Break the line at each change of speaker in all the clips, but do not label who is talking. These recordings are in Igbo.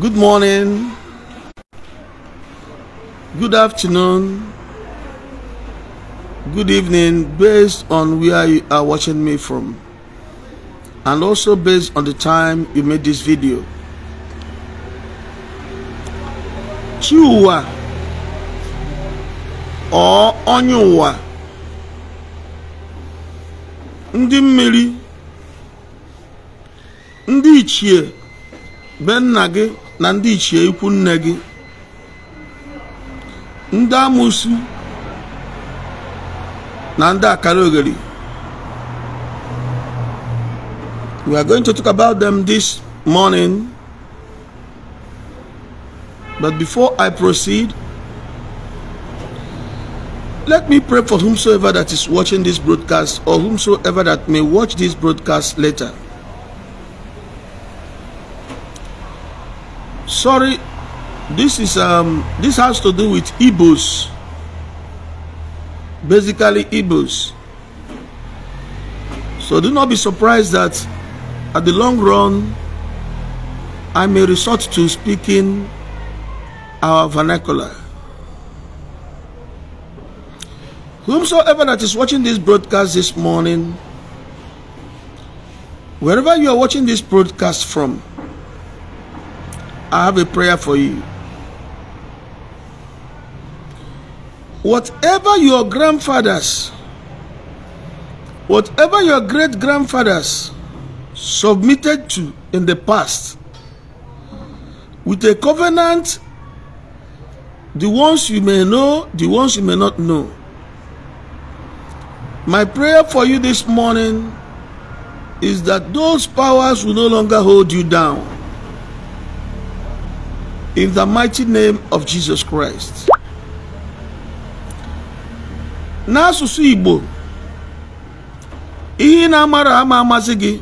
Good morning. Good afternoon. Good evening, based on where you are watching me from, and also based on the time you made this video. Chua or Onyuwa. ndị mmiri ndị ichie na ndị ichie ikwu nne gị ndị amụsụ na ndị akara ogheri we are going to talk about them this morning but before I proceed let me pray for whomsoever that is watching this broadcast or whomsoever that may watch this broadcast later sorry this is um this has to do with Igbos basically Igbos so do not be surprised that at the long run I may resort to speaking our vernacular whomsoever that is watching this broadcast this morning wherever you are watching this broadcast from I have a prayer for you. Whatever your grandfathers, whatever your great grandfathers submitted to in the past, with a covenant, the ones you may know, the ones you may not know. My prayer for you this morning is that those powers will no longer hold you down In the mighty name of Jesus Christ. N'asụsụ Igbo, ihe na-amara ama amasị gị,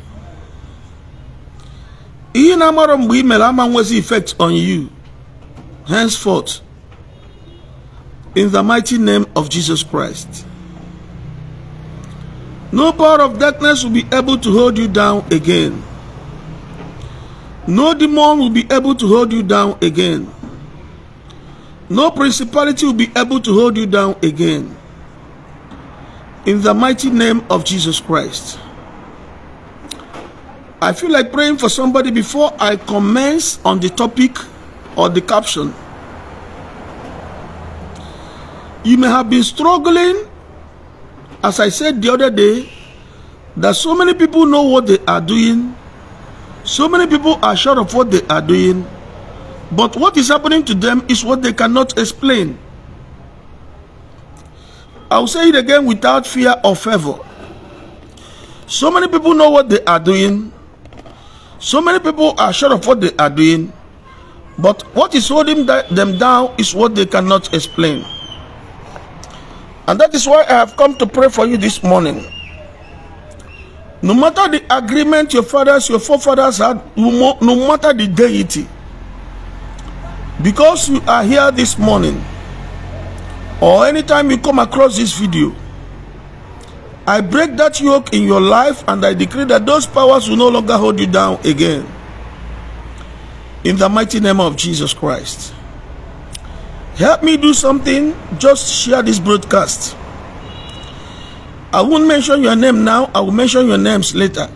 ihe na-amara mgbe i mere ama nwezi effect on you, henceforth, in the mighty name of Jesus Christ. No power of darkness will be able to hold you down again. No demon will be able to hold you down again. No principality will be able to hold you down again. In the mighty name of Jesus Christ. I feel like praying for somebody before I commence on the topic or the caption. You may have been struggling, as I said the other day, that so many people know what they are doing So many people are sure of what they are doing, but what is happening to them is what they cannot explain. I'll say it again without fear or favor. So many people know what they are doing. So many people are sure of what they are doing. But what is holding them down is what they cannot explain. And that is why I have come to pray for you this morning. No matter the agreement your fathers, your forefathers had, no matter the deity, because you are here this morning, or anytime you come across this video, I break that yoke in your life and I decree that those powers will no longer hold you down again. In the mighty name of Jesus Christ. Help me do something, just share this broadcast. I won't mention your name now. I will mention your names later.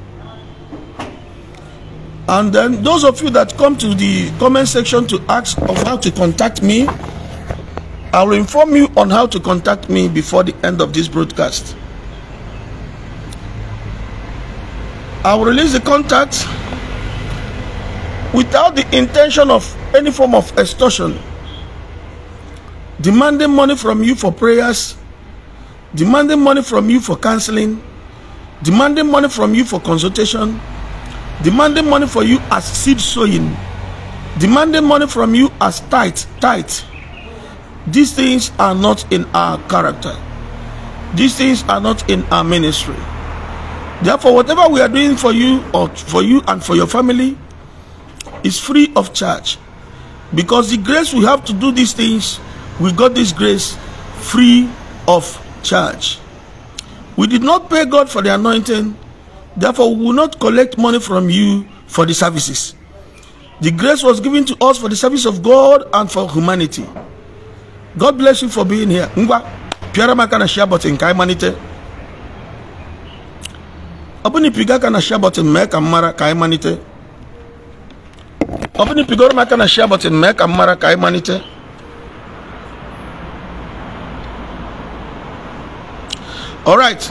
And then those of you that come to the comment section to ask of how to contact me, I will inform you on how to contact me before the end of this broadcast. I will release the contact without the intention of any form of extortion, demanding money from you for prayers demanding money from you for counseling, demanding money from you for consultation, demanding money for you as seed sowing, demanding money from you as tight, tight. These things are not in our character. These things are not in our ministry. Therefore, whatever we are doing for you or for you and for your family is free of charge. Because the grace we have to do these things, we got this grace free of charge. We did not pay God for the anointing, therefore, we will not collect money from you for the services. The grace was given to us for the service of God and for humanity. God bless you for being here. Ngwa, piara makana share button ka imanite. Obuni piga ka na share button mek amara kai manite. imanite. Obuni pigoro makana share button mek amara kai manite. all right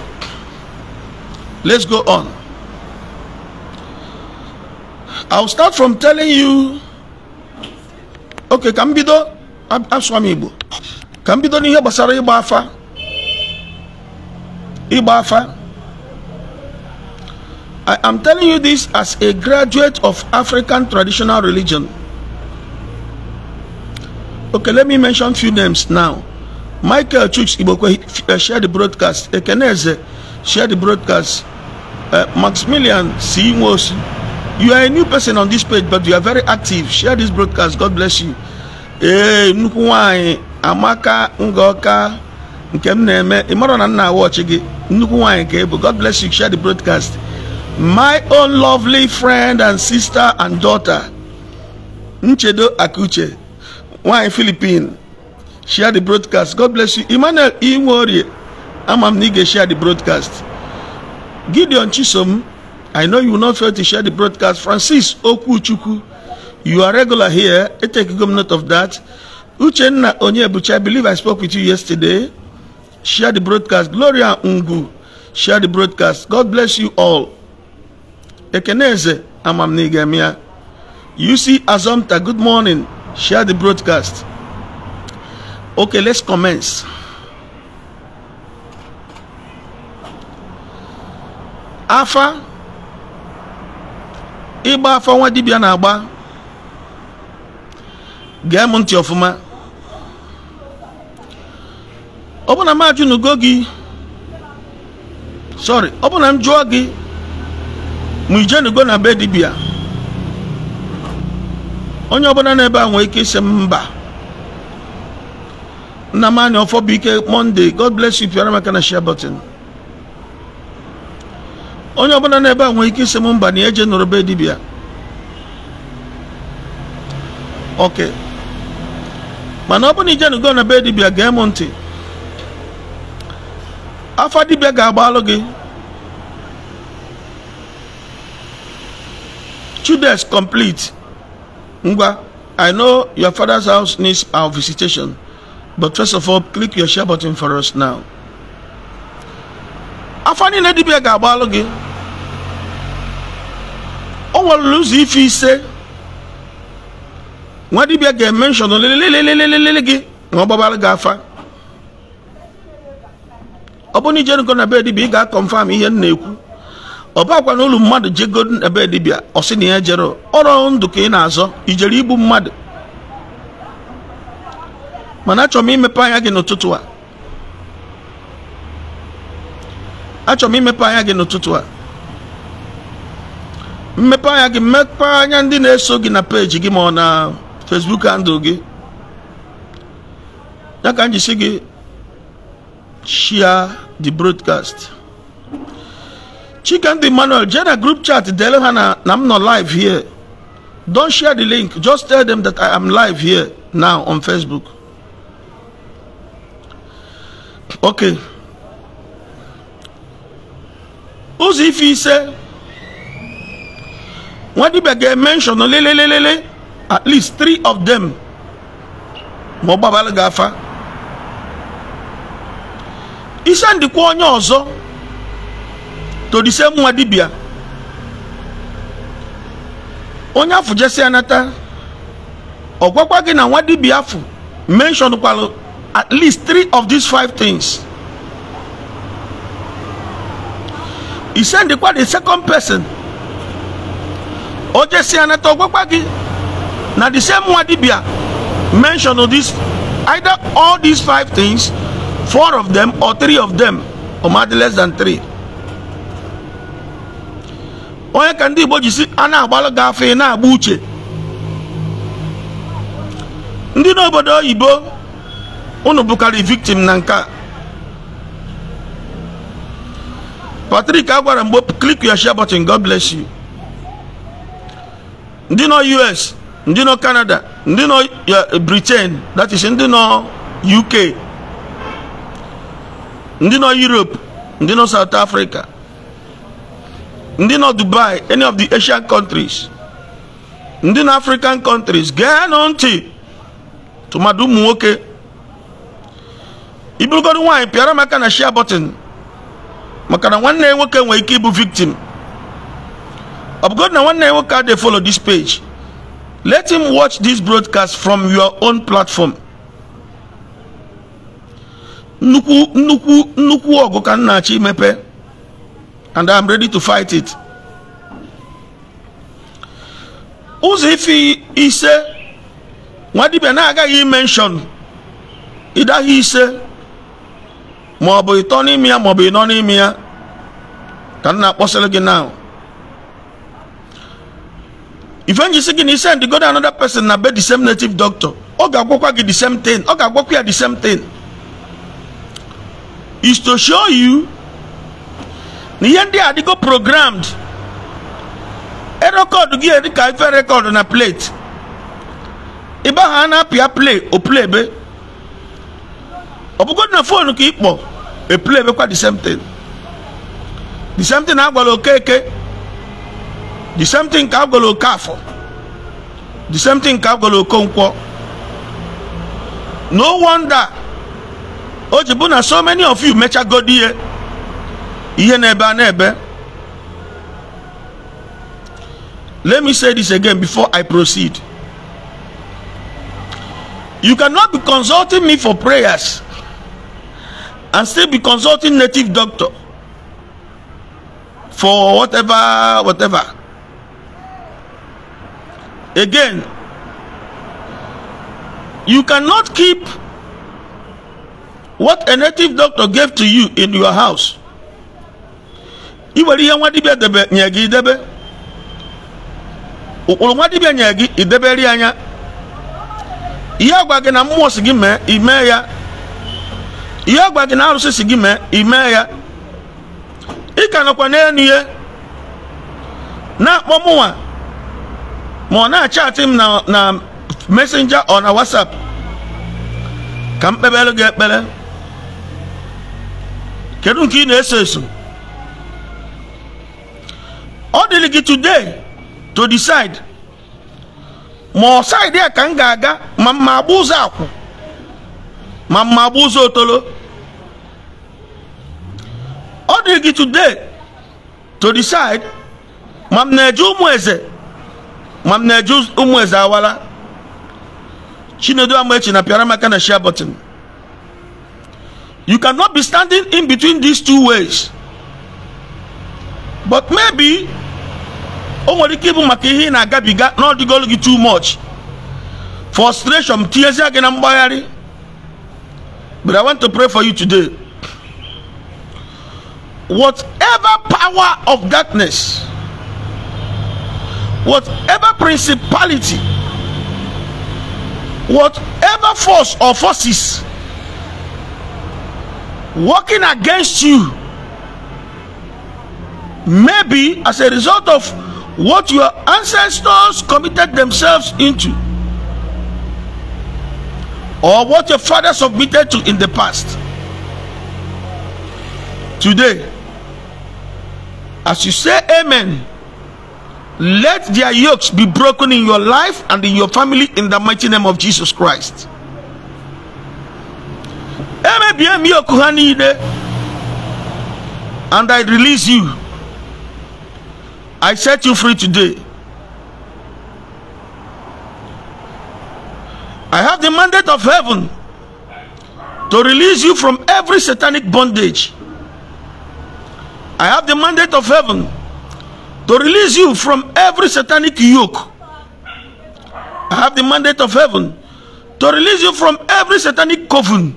let's go on i'll start from telling you okay ka m bido asụọ m igbo ka m bido n'ihe gbasara ịgba afa ịgba afa i am telling you this as a graduate of african traditional religion okay let me mention few names now michael chuks igbokwe uh, eh, shared the broadcast ekeneze share the broadcast uh, maximilian c nwosu you are a new person on this page but you are very active share this broadcast god bless you ee eh, nnukwu nwanyị amaka ngaoka nke m na-eme ịmara na nna awọchi gị nnukwu nwanyị ka ịbụ god bless you share the broadcast my own lovely friend and sister and daughter nchedo akuche nwanyị philippine share the broadcast god bless you emmanuel iwori ama m na ị ga-eshare the broadcast gideon chisom i know you will not fail to share the broadcast francis okwuchukwu you are regular here I take good note of that uchenna onyebuchi i believe i spoke with you yesterday share the broadcast gloria ungu share the broadcast god bless you all ekeneze you uc azomta good morning share the broadcast ok let's commence afa ịgba afa nwa dibia na-agba gee m ntị ọfụma ọbụna bụ na m gị sorry ọ bụ m jụọ gị ije nugo na be dibia onye ọbụla n'ebe a nwee ike isi mba Nnamani Ọfọbụike Monday God bless you pịara maka na share button onye ọbụla na-ebe nwere ike isi m mba na eje nụrụ be dibịa ok mana ọ bụrụ na ijenugo na be dibịa gee m afọ afa dibịa ga-agbalụ two chudes complete ngwa i know your father's house needs our visitation But first of all, click your share button for us now. afọ niile dibịa ga-agbalụ gị o nwere ụzọ ife ise nwa dibịa ga-eme nshọn lelelelelelele gị ma ga afa ọ bụrụ na ijerugo na be dibịa ị ga-akọnfam ihe m na-ekwu ọ bakwa na ụlọ mmadụ jego na be dibịa ọ sị na ya jere ọrụ ndụ ka ị na-azọ ijere ibu mmadụ mana achọrọ m imepe anya gị n'ụtụtụ a achọrọ m imepe anya gị n'ụtụtụ a mmepe anya gị mmepe anya ndị na-eso gị na page gị ma ọ na Facebook handle gị ya ka m jisi gị share the broadcast Chikendi Emmanuel je na group chat dele ha na na m nọ live here don't share the link just tell them that I am live here now on Facebook ok ụzọ ife ise nwadibia ga-emenshọn lelelelele at least three of them ma ọ gbabara gị afa ise ndịkwa onye ọzọ todise nwa dibia onye afụ jesi anata ọ gwakwa gị na nwa dibia afụ menshọn kwalụ at least three of these five things. He said the quite the second person. Oje si anato gbagbagi. Na the same Wadibia mention of this either all these five things, four of them or three of them, or maybe less than three. onye kandi boji si a na-agbalụ na abuche. uche ndị n'obodo oyibo unu bụkarị victim na nke a Patrick agwara mgbe click your share button God bless you ndị nọ US ndị nọ Canada ndị nọ eh, Britain that is ndị nọ UK ndị nọ Europe ndị nọ South Africa ndị nọ Dubai any of the Asian countries ndị nọ African countries gee nụ ntị tụmadụ ụmụ nwoke iburugodo nwaanyị pịara maka na shia button maka na nwanne ya nwoke nwere ike ịbụ victim ọ bụgodu na nwanne ya nwoke dey follow this page let him watch this broadcast from your own platform nnukwu nnukwu nnukwu ọgụ ka m na-achọ imepe and am ready to fight it ụzọ ife ise nwa dibia na-agaghị imenshọn ịdaghị ise ma ọ bụ ịtọ n'ime ya ma ọ bụ ịnọ n'ime ya ka m na-akpọsịrị gị na ife njisi gị na ise ndị godo another person na be the same native doctor ọ ga-agwakwa gị the same thing ọ ga-agwakwa ya the same thing is to show you na ihe ndị adịgo programmed erekọdụ gị eri ka ife rekọdụ na plate ahụ ha na-apịa play o play be ọ bụgodị na fonu ka ị kpọ epule emekwa the same thing the same thing agwara okeke the same thing ka agwara okafọ the same thing ka agwara okonkwọ no wonder o ji bụ na so many of you mechagodi ihe eh? ihe na-ebe a na let me say this again before i proceed you cannot be consulting me for prayers and still be consulting native doctor for whatever whatever again you cannot keep what a native doctor gave to you in your house i ihe nwa dibia debe nye gị idebe ụkpụrụ nwa dibia nye gị idebere anya ihe agwa gị na mmụọ si gị mee imee ya ihe agwa gị na arụsị si gị mee ya ị ka nọkwa n'elu ya na-akpọ mụnwa ma ọ na-achatị m na mesenja ọ na wasap ka m kpebere gị ekpere kedu nke ị na-eso eso ọ dịrị gị today to decide ma ọ saịdị a ka m ga-aga ma mma agba ụzọ akwụ ma mma gba ụzọ otolo ọ dị gị today to decide ma m na-eje ụmụ eze ma m na-eje ụmụ eze awala chinedu amaechi na pịara maka na share button you cannot be standing in between these two ways but maybe o nwere ike ịbụ maka ihe ị na-agabiga na gị too much frustration tinyezie gị na mgbagharị But I want to pray for you today. Whatever power of darkness, whatever principality, whatever force or forces working against you, maybe as a result of what your ancestors committed themselves into or what your father submitted to in the past. Today, as you say amen, let their yokes be broken in your life and in your family in the mighty name of Jesus Christ. And I release you. I set you free today. I have the mandate of heaven to release you from every satanic bondage. I have the mandate of heaven to release you from every satanic yoke. I have the mandate of heaven to release you from every satanic coven.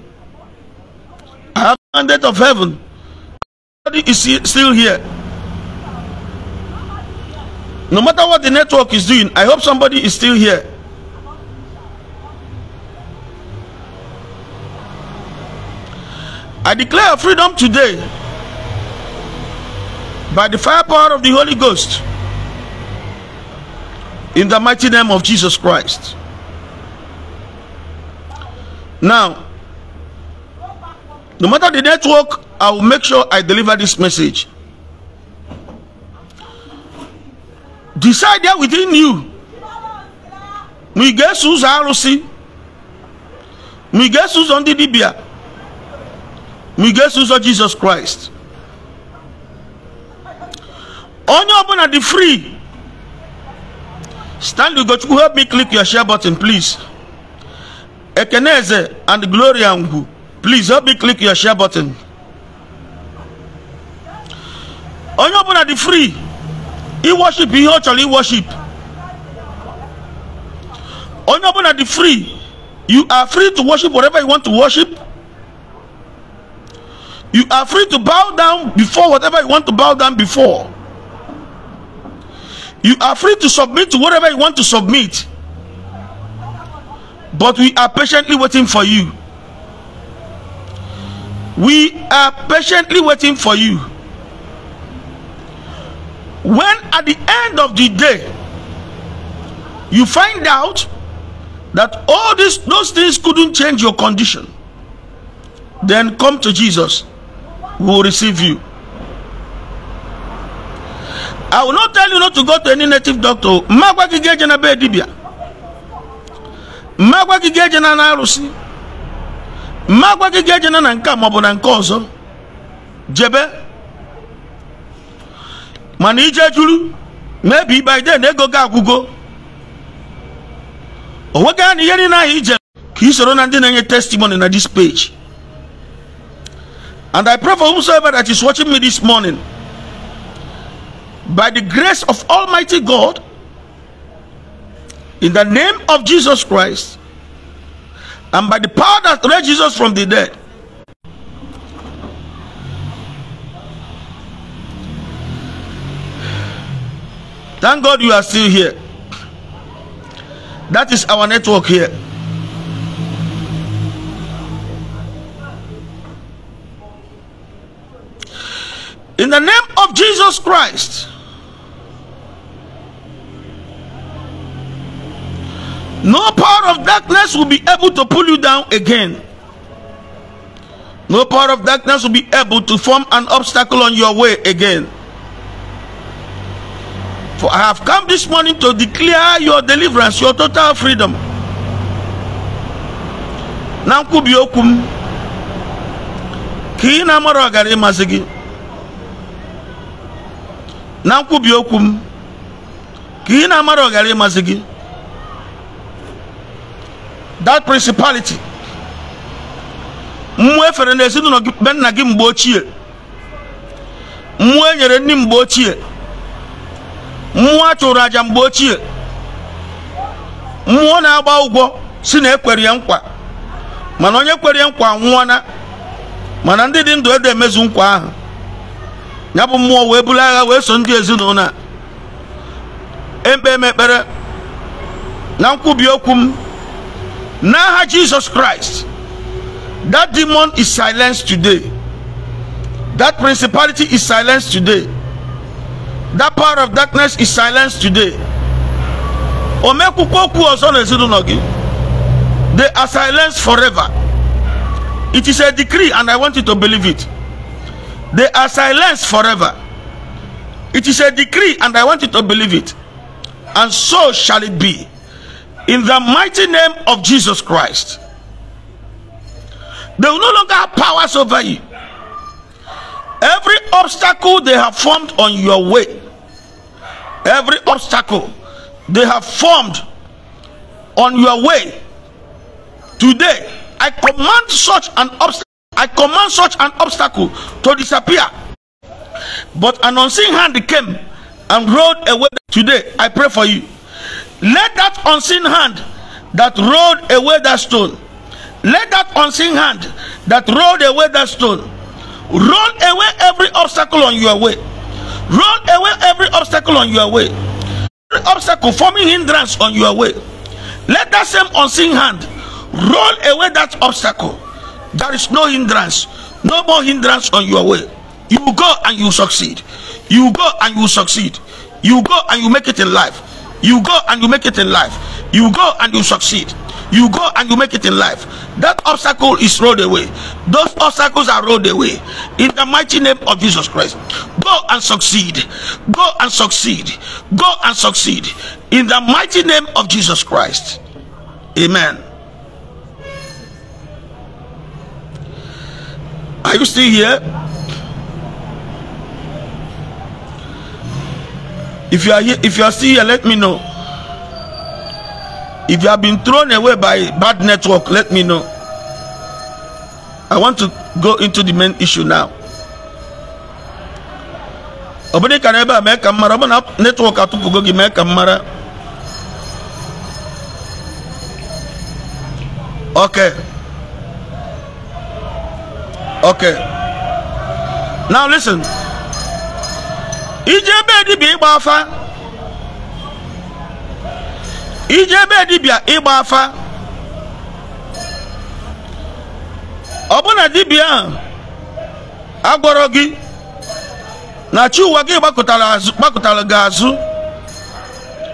I have the mandate of heaven. Everybody is still here. No matter what the network is doing, I hope somebody is still here. I declare freedom today by the firepower of the Holy Ghost in the mighty name of Jesus Christ. Now, no matter the network, I will make sure I deliver this message. Decide there within you. We get Susan Rossi. We get Susan Didibia mige nso jesus christ onye ọbụla dị free stanley ugochukwu help me click your share button please ekeneze and gloria ngwu please help me click your share button onye ọbụla dị free iworship ihe ọ chọrọ iworship onye ọbụla dị free you are free to worship whatever you want to worship You are free to bow down before whatever you want to bow down before. You are free to submit to whatever you want to submit. But we are patiently waiting for you. We are patiently waiting for you. When at the end of the day, you find out that all these those things couldn't change your condition, then come to Jesus will receive you. I will not tell you not to go to any native doctor. Mmagwa gị ga-eje na be dibia. Mmagwa eje na arụsị. magwa gị eje na nka a na nke ọzọ. Jebe. Mana ije juru maybe by then ego gị agwụgo. O nweghị anya ihe niile ahụ ije ka i soro na ndị na-enye testimony na this page. And I pray for whosoever that is watching me this morning, by the grace of Almighty God, in the name of Jesus Christ, and by the power that raised Jesus from the dead, Thank God you are still here. That is our network here. In the name of Jesus Christ. No power of darkness will be able to pull you down again. No power of darkness will be able to form an obstacle on your way again. For I have come this morning to declare your deliverance, your total freedom. na nkwubi okwu m ka na nkwubi okwu m ka ị na-amara ọghara ịmazi gị that principality mmụọ efere na ezinụlọ gị be nna gị mgbe ochie mmụọ enyere nyere mgbe ochie mmụọ a chụrụ aja mgbe ochie mmụọ na-agba ụgwọ si na ekwere nkwa mana onye kwere ya nkwa nwụọna mana ndị dị ndụ edo emezu nkwa ahụ ya bụ mmụọ wee buru agha wee so ndị ezinụlọ a ekpe m ekpere na nkwubi okwu m n'aha Jesus Christ that demon is silenced today that principality is silenced today that power of darkness is silenced today o mekwukwa okwu ọzọ n'ezinụlọ gị they are silenced forever it is a decree and I want you to believe it They are silenced forever. It is a decree, and I want you to believe it. And so shall it be. In the mighty name of Jesus Christ. They will no longer have powers over you. Every obstacle they have formed on your way, every obstacle they have formed on your way, today I command such an obstacle. I command such an obstacle to disappear. But an unseen hand came and rolled away. Today, I pray for you. Let that unseen hand that rolled away that stone, let that unseen hand that rolled away that stone roll away every obstacle on your way. Roll away every obstacle on your way. Every obstacle forming hindrance on your way. Let that same unseen hand roll away that obstacle there is no hindrance no more hindrance on your way you go and you succeed you go and you succeed you go and you make it in life you go and you make it in life you go and you succeed you go and you make it in life that obstacle is rolled away those obstacles are rolled away in the mighty name of jesus christ go and succeed go and succeed go and succeed in the mighty name of jesus christ amen Are you still here? If you are here, if you are still here, let me know. If you have been thrown away by bad network, let me know. I want to go into the main issue now. ọ bụrụ ebe a mee ka m mara netwọk atụpụgo gị mee ka m okay. Okay. Now listen. Ije ebe dibịa igba afa. Ije ebe dibịa igba afa. Ọbụna dibịa ahụ agwọrọ gị na chi ụwa gị gbakọtara azụ gbakọtara azụ.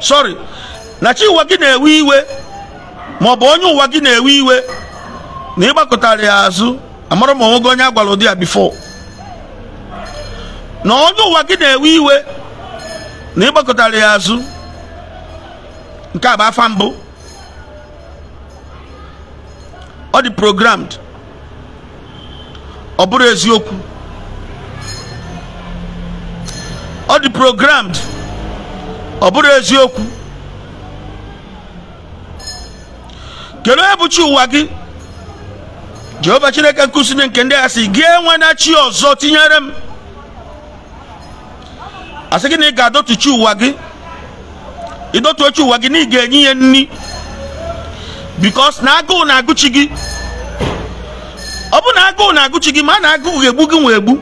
Sorry. Na chi ụwa gị na-ewe iwe maọbụ onye ụwa gị na-ewe iwe na ịgbakọtara ya azụ. amara ma onwe onye agwara ụdị ya bifo na ọdụ ụwa gị na-ewe iwe na ịgbakọtara ya azụ nke a bụ afa mbụ ọ dị programmed ọ bụrụ eziokwu ọ dị programmed ọ bụrụ eziokwu kedu onye bụchi ụwa gị jehova chineke nkusini nke ndị asị sị gị enwena chi ọzọ tinyere m asị gị na ị ga-adọtuchi ụwa gị ịdọtuochi ụwa gị na ị ga-enye ya nri bikos na agụụ na-agụchi gị ọ bụ na agụụ na-agụchi gị ma na agụụ ga-egbu gị nwa egbu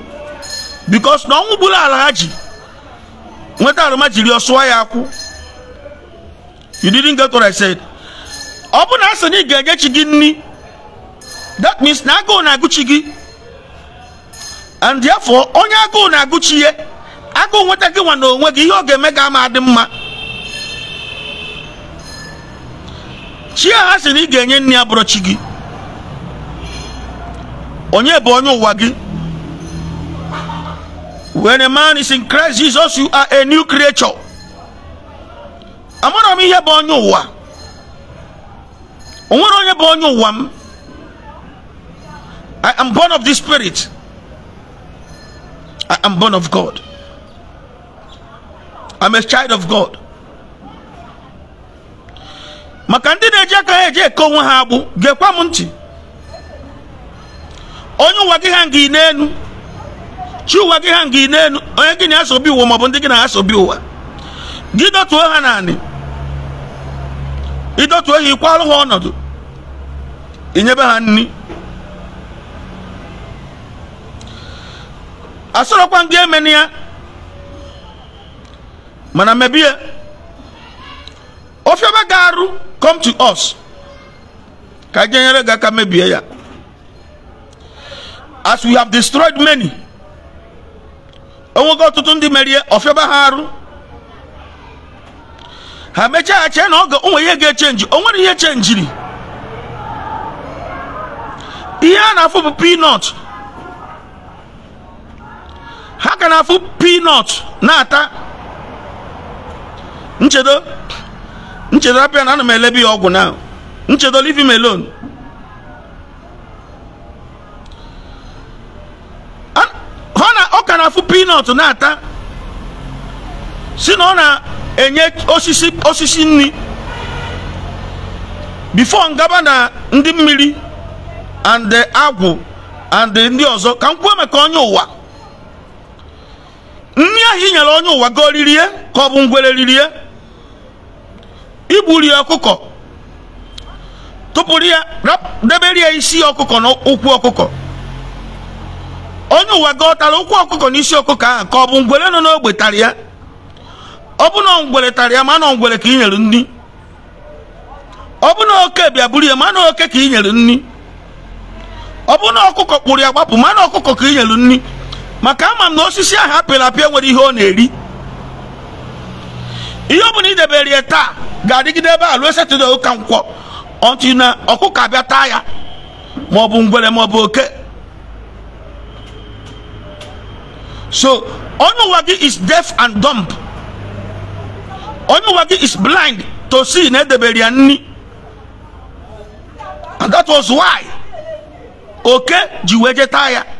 bikos na ọnwụ gburu ala ha ji nweta arụma jiri ọsụọ ya akwụ Yudiri didn't get what ọ bụ na asị na ị ga-enye chi gị nri that means na agụụ na-agụchi gị and therefore onye agụụ na-agụchi ihe agụụ nweta gị nwa n'onwe onwe gị ihe ọ ga-eme gị ama adị mma chi ha sị na ị ga-enye nri abụrụ chi gị onye bụ onye ụwa gị when a man is in Christ Jesus you are a new creature amara m ihe bụ onye ụwa onwere onye bụ onye ụwa m I am born of the Spirit. I am born of God. I'm a child of God. maka ndị na-eji aka ha eji eke onwe ha agbụ gekwa m ntị onye ụwa gị ha ngị n'elu chi ụwa gị ha ngị n'elu onye gị na-asọbi ụwa maọbụ ndị gị na-asọbi ụwa gị dọtuo ha naanị ịdọtuo ha ịkwalụ ha ọnọdụ nyebe ha nri asorokwa ndị emeni ya mana mebie ofiọma ga-arụ come to us ka jenyere gị aka mebie ya as we have destroyed many onwego ọtụtụ ndị merie ofiọma ha arụ ha mechaa chee na ọ onwe ihe ga-echenji o nwere ihe chenjiri ihe a na-afụ bụ peanut ha ka na-afụ pinọt na-ata nchedo nchedo apịa na ana m elebe ya ọgwụ na nchedo leave him alone ọ ka na-afụ pinọt na-ata si na ọ na-enye osisi osisi nri before ngaba na ndị mmiri and agwụ and ndị ọzọ ka m kwuo maka onye ụwa nri ahụ inyere onye ụwa goo ririe ka ọ bụ ngwere ririe igburi ọkụkọ tụpụrụ ya debere ya isi ọkụkọ na ụkwụ ọkụkọ onye ụwa gọtara ụkwụ ọkụkọ na isi ọkụkọ ahụ ka ọ bụ ngwere nọ n'ogbe tara ya ọ bụ na ngwere tara ya ma na ngwere ka i nyere nri ọ bụ na oke bịa buru ya ma na oke ka i nyere nri ọ bụ na ọkụkọ kpụrụ ya gbapụ ma na ọkụkọ ka i nyere nri maka ama m na osisi ahụ apịrị apịa nwere ihe ọ na-eri ihe ọ bụla idebere ya taa ga-adịgide ebe a ruo ụka nkwọ ọtụ na ọkụkọ abịa taa ya ma ọ bụ ngwere ma ọ bụ oke so onye ụwa gị is deaf and dumb onye ụwa gị is blind to see na edebere ya nri and that was why oke ji wee jee taa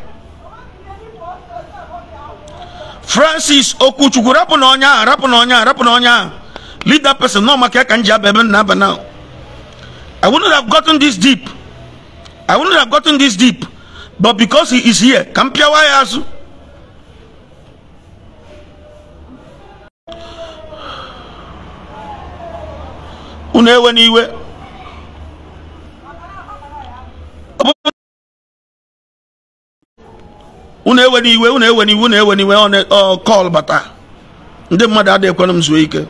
francis okwuchukwu rapụ na ọnya ahụ rapụ na ọnya ahụ rapụ na ọnya person nọ maka ya ka m na-aba now i wouldn't have gotten this deep i wouldn't have gotten this deep but because he is here ka m pịawa ya azụ unu ewe iwe unu ewe iwe unu ewe n'iwe ọ kọl bata ndị mmadụ adịghị ekwenụ m zuo ike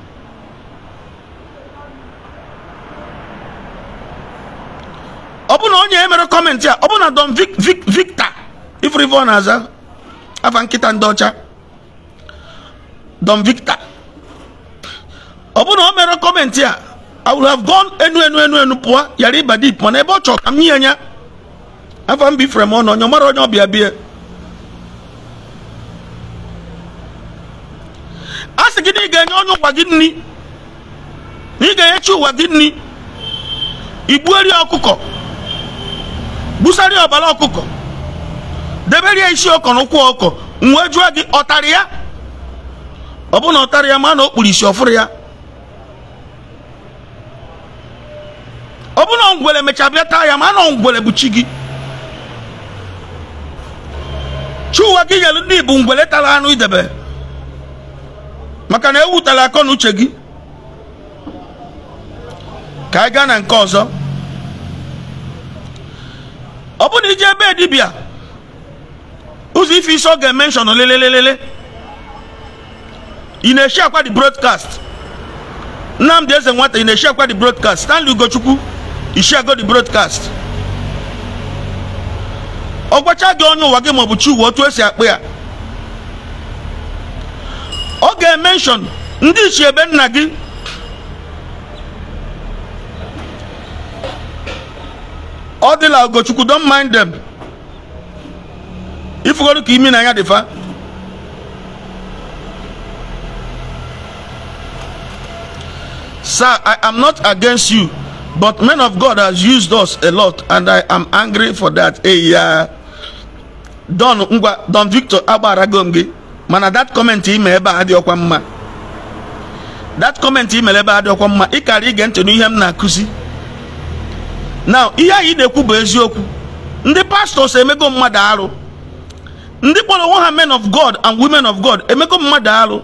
ọ bụ na onye emere kọmentị a ọ bụ na don victor ọ na-aza afa nkịta ndị ọcha don victor ọ bụ na o mere kọmentị a i will have gone enu enu enu enu pụọ yara ịba dip na ebe ọ chọrọ ka m nye ya afa m m ọnụ onye mara onye bie a sị gị na ị ga-enye onye ụwa gị nri na ị ga-enyechi ụwa gị nri igbueri ọkụkọ gbusarịa ọbara ọkụkọ deberie isi ọkọ na ụkwụ ọkọ nwe jụọ gị ọtarị ya ọ bụ na ọtarị ya ma na o kpuru isi ọfụrụ ya ọ bụ na ngwere mechaa bịa taa ya ma na ngwere bụ chi gị chi ụwa gị nyere ndị bụ ngwere tara anụ idebe maka na ewutala akọ na uche gị ka anyị gaa na nke ọzọ ọ bụ na ije ebe dibịa ụzọ ife isi ọ ga-emenshọn lelelelele ị na-eshi akwa di broadcast nnamdị eze nwata ị na-eshi akwa di broadcast stanley ugochukwu ishiago di broadcast ọ gwacha gị onye ụwa gị maọbụ chi ụwa otu esi akpụ ya ọ ga-emenshọn ndị ichie ebe nna gị ọ dịla ogochukwu don mind them ifugoro ka imi na ya dịfa sir i am not against you but men of god has used us a lot and i am angry for that eya don ngwa don victor agbara gi. mana that comment ime ebe a adịọkwa mma that comment imere ebe a adịọkwa mma ịkara ige ntị n'ihe m na-akụzi na ihe anyị na-ekwu bụ eziokwu ndị pastors emego mmadụ arụ ndị kpọrọ onwe ha men of god and women of god emego mmadụ arụ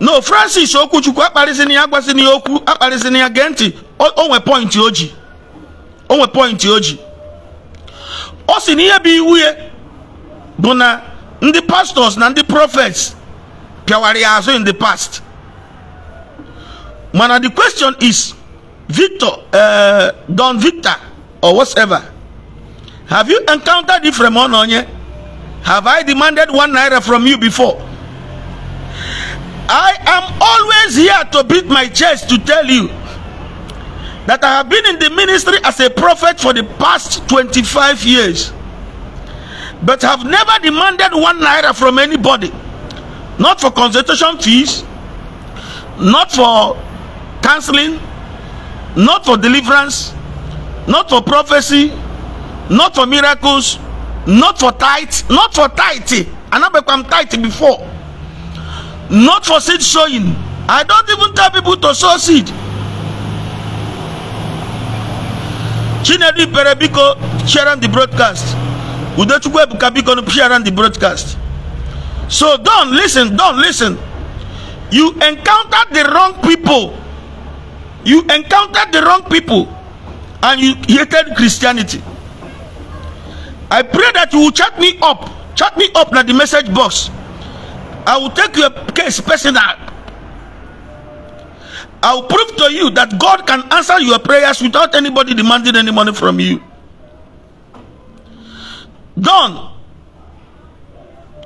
no francis okwuchukwu akparịzina ya agwazina ya okwu akparịzina ya gee ntị onwe pọintị o ji onwe pọintị o ji ọ sị na ihe bụ iwu ya bụ na the pastors and the prophets pịawara ya in the past mana the question is victor uh, don victor or whatever have you encountered it from one onye have i demanded one naira from you before i am always here to beat my chest to tell you that i have been in the ministry as a prophet for the past 25 years but have never demanded one naira from anybody not for consultation fees not for counseling not for deliverance not for prophecy not for miracles not for tithe not for tithe i never become tithe before not for seed sowing i don't even tell people to sow seed chinedu ipere sharing the broadcast Udachukwu Ebuka biko no share around the broadcast so don't listen don't listen you encounter the wrong people you encounter the wrong people and you hated Christianity I pray that you will chat me up chat me up at the message box I will take your case personal I will prove to you that God can answer your prayers without anybody demanding any money from you Done.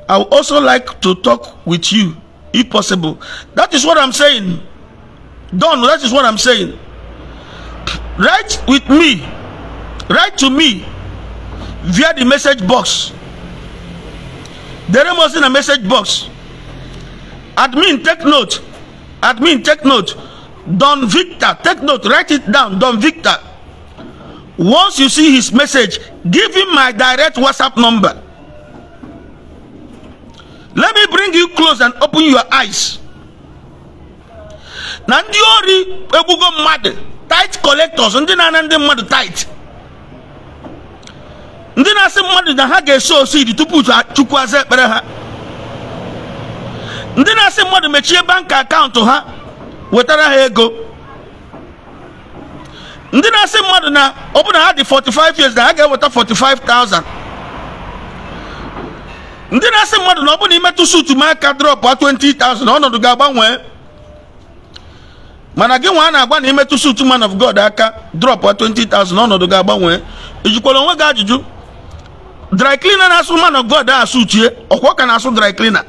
I would also like to talk with you if possible. That is what I'm saying. Done. that is what I'm saying. Write with me. Write to me via the message box. There must in a message box. Admin, take note. Admin, take note. Don Victor, take note. Write it down. Don Victor. once you see his message give him my direct whatsapp number let me bring you close and open your eyes na ndị ori egwugo mmadụ tight collectors ndị na-ana ndị mmadụ tight ndị na-asị mmadụ na ha ga-eso osidi tupu chukwu aza ekpere ha ndị na-asị mmadụ mechie bank akaụntụ ha wetara ha ego ndị na-asị mmadụ na ọ bụ na ha dị 45 years na ha ga-eweta 45,000 ndị na-asị mmadụ na ọ bụ na imetụ sutu m aka drọpụ 20,000 ọnọdụ ga-agbanwe mana gị nwa a na agba na imetụ sutu man of God aka drọpụ 20,000 ọnọdụ ga-agbanwe ijikwara onwe gị ajụjụ dry cleaner na-asụ man of God a sutie ọkwa ka na-asụ dry cleaner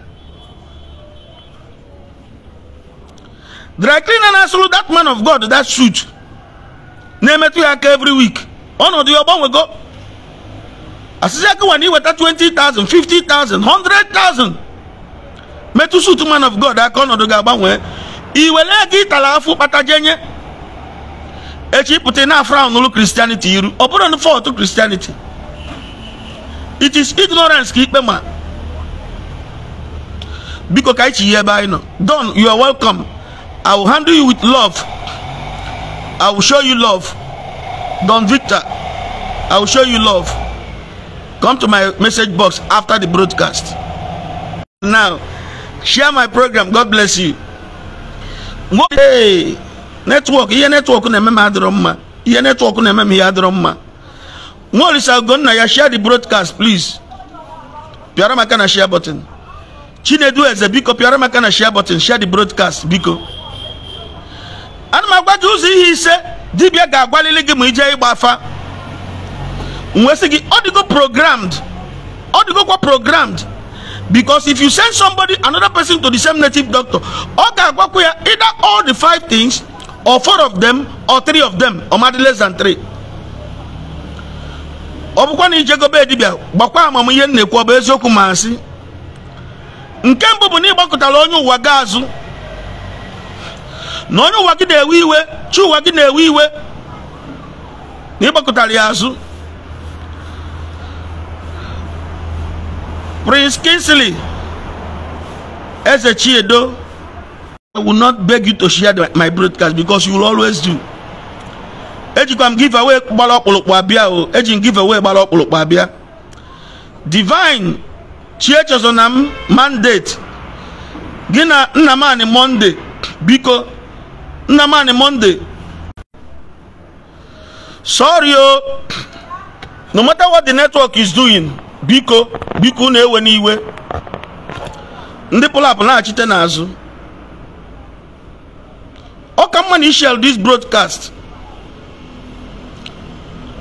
dry cleaner na-asụrụ that man of God that suit na-emetụ ya aka every week ọnọdụ ya ọgbanwego asịsị aka nwa na iweta 20,000 50,000 100,000 metụ suit man of god aka ọnọdụ ga-agbanwe iwere ka ịtara afụ kpata jenye echi na afra n'ụlọ iru ọ bụrụ na fọtụ kristianity it is ignorance ka ikpe ma biko ka ichi ya ebe anyị nọ don you are welcome i will handle you with love I will show you love. Don Victor, I will show you love. Come to my message box after the broadcast. Now, share my program. God bless you. Hey, network. Ihe network na-eme m adịrọ mma. Ihe network na-eme m ihe adịrọ mma. Nwa Olisa Ogonna ya share the broadcast please. Pịara m aka na share button. Chinedu Eze biko pịara m aka na share button. Share the broadcast biko. ana m agwa gị ụzọ ihe ise dibịa ga-agwalili gị ma ijee ịgba afa nwesị gị ọ dịgo programmed ọ dịgokwa programmed because if you send somebody another person to the same native doctor ọ ga-agwakwa ya either all the five things or four of them or three of them or madị less than three ọ bụkwa na ijegobe dibịa gbakwa amamihe m na-ekwu ọ bụ eziokwu ma nsị nke mbụ bụ na ịgbakọtala onye ụwa ga azụ na onye ụwa gị na-ewe iwe chi ụwa gị na-ewe iwe na ịgbakọtara ya azụ Prince kinsley Eze Chiedo I will not beg you to share my broadcast because you will always do ejikwa m giveaway gbara ọkpụlụkpụ abịa o eji m away gbara ọkpụlụkpụ abịa divine chiechezona m mandate gị na nna m anị monde biko Nnamani monde sorry o no matter what the network is doing biko biko na-ewe n'iwe ndị pụlapụ na-achite n'azụ ọ ka mma na ishel this broadcast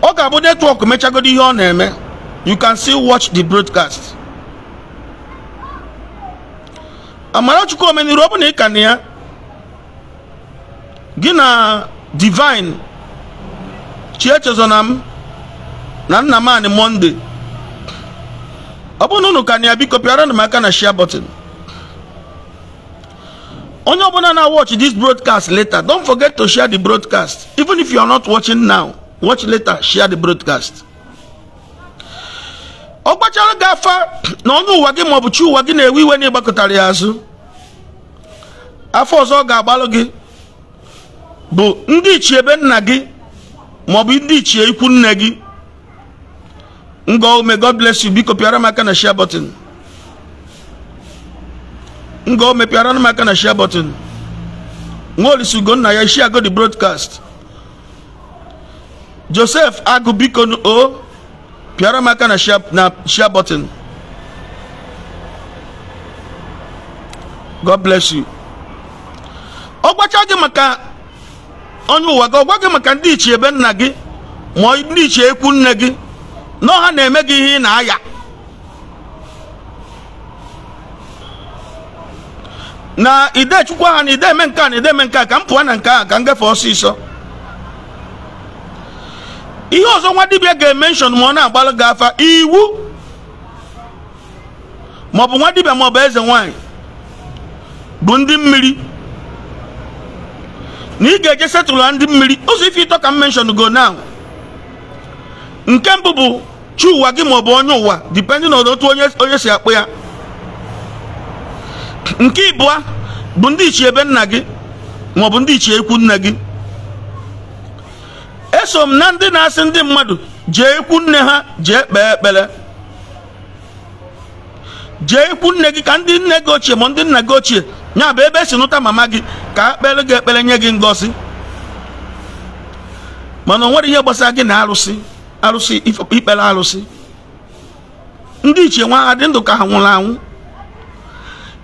ọ ga-abụ netwọk mechagodi ihe ọ na-eme you can still watch the broadcast Amarachukwu omeniru ọ bụ na ị na ya gị na divine Chie m na nna m anị monde ọ bụrụ na unu ka na ya biko pịara m aka na share button onye ọbụla na watch this broadcast later don't forget to share the broadcast even if you are not watching now watch later share the broadcast ọ gbachara gị afa na onye ụwa gị maọbụ chi ụwa gị na-ewe iwe na ịgbakọtara ya azụ afọ ọzọ ọ ga-agbalụ gị bụ ndị ichie ebe nna gị maọbụ ndị ichie ikwu nne gị ngome god bless you biko pịara m aka na share button ngome Piara m aka na share button nwaolisi ugonna ya share go the broadcast joseph agụ biko o pịara m aka na share button god bless you ọ gbacha gị maka onye ụwa gị ọ gwa gị maka ndị ichie ebe nna gị ma ndị ichie ekwu nne gị na na-eme gị ihe ị na-aya na idechukwu ha na ideme nke a na ideme nke a ka m pụọ na nke a ka m gafe ọsịsọ ihe ọzọ nwa dibịa ga-emenshọn ma ọ na-agbalụ gị afa iwu maọbụ nwa dibịa maọbụ eze nwaanyị bụ ndị mmiri na ị ga-eje setụla ndị mmiri ụzọ ife ịtọ ka m menshon go now nke mbụ bụ chi ụwa gị maọbụ onye ụwa dipendị na otu onye si akpụ ya nke ịbụa bụ ndị ichie ebe nna gị maọbụ ndị ichie ekwu nne gị eso m na ndị na-asị ndị mmadụ jee ikwu nne ha jee kpee ekpere jee ikwu nne gị ka ndị nne gị ochie ma ndị nna gị ochie nya bụ ebe esi nụta mama gị ka akpere gị ekpere nye gị ngosi mana o nwere ihe gbasara gị na arụsị arụsị ikpere arụsị ndị iche nwa ha dị ndụ ka ha nwụrụ anwụ